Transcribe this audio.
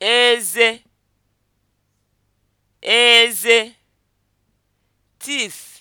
eze eze teeth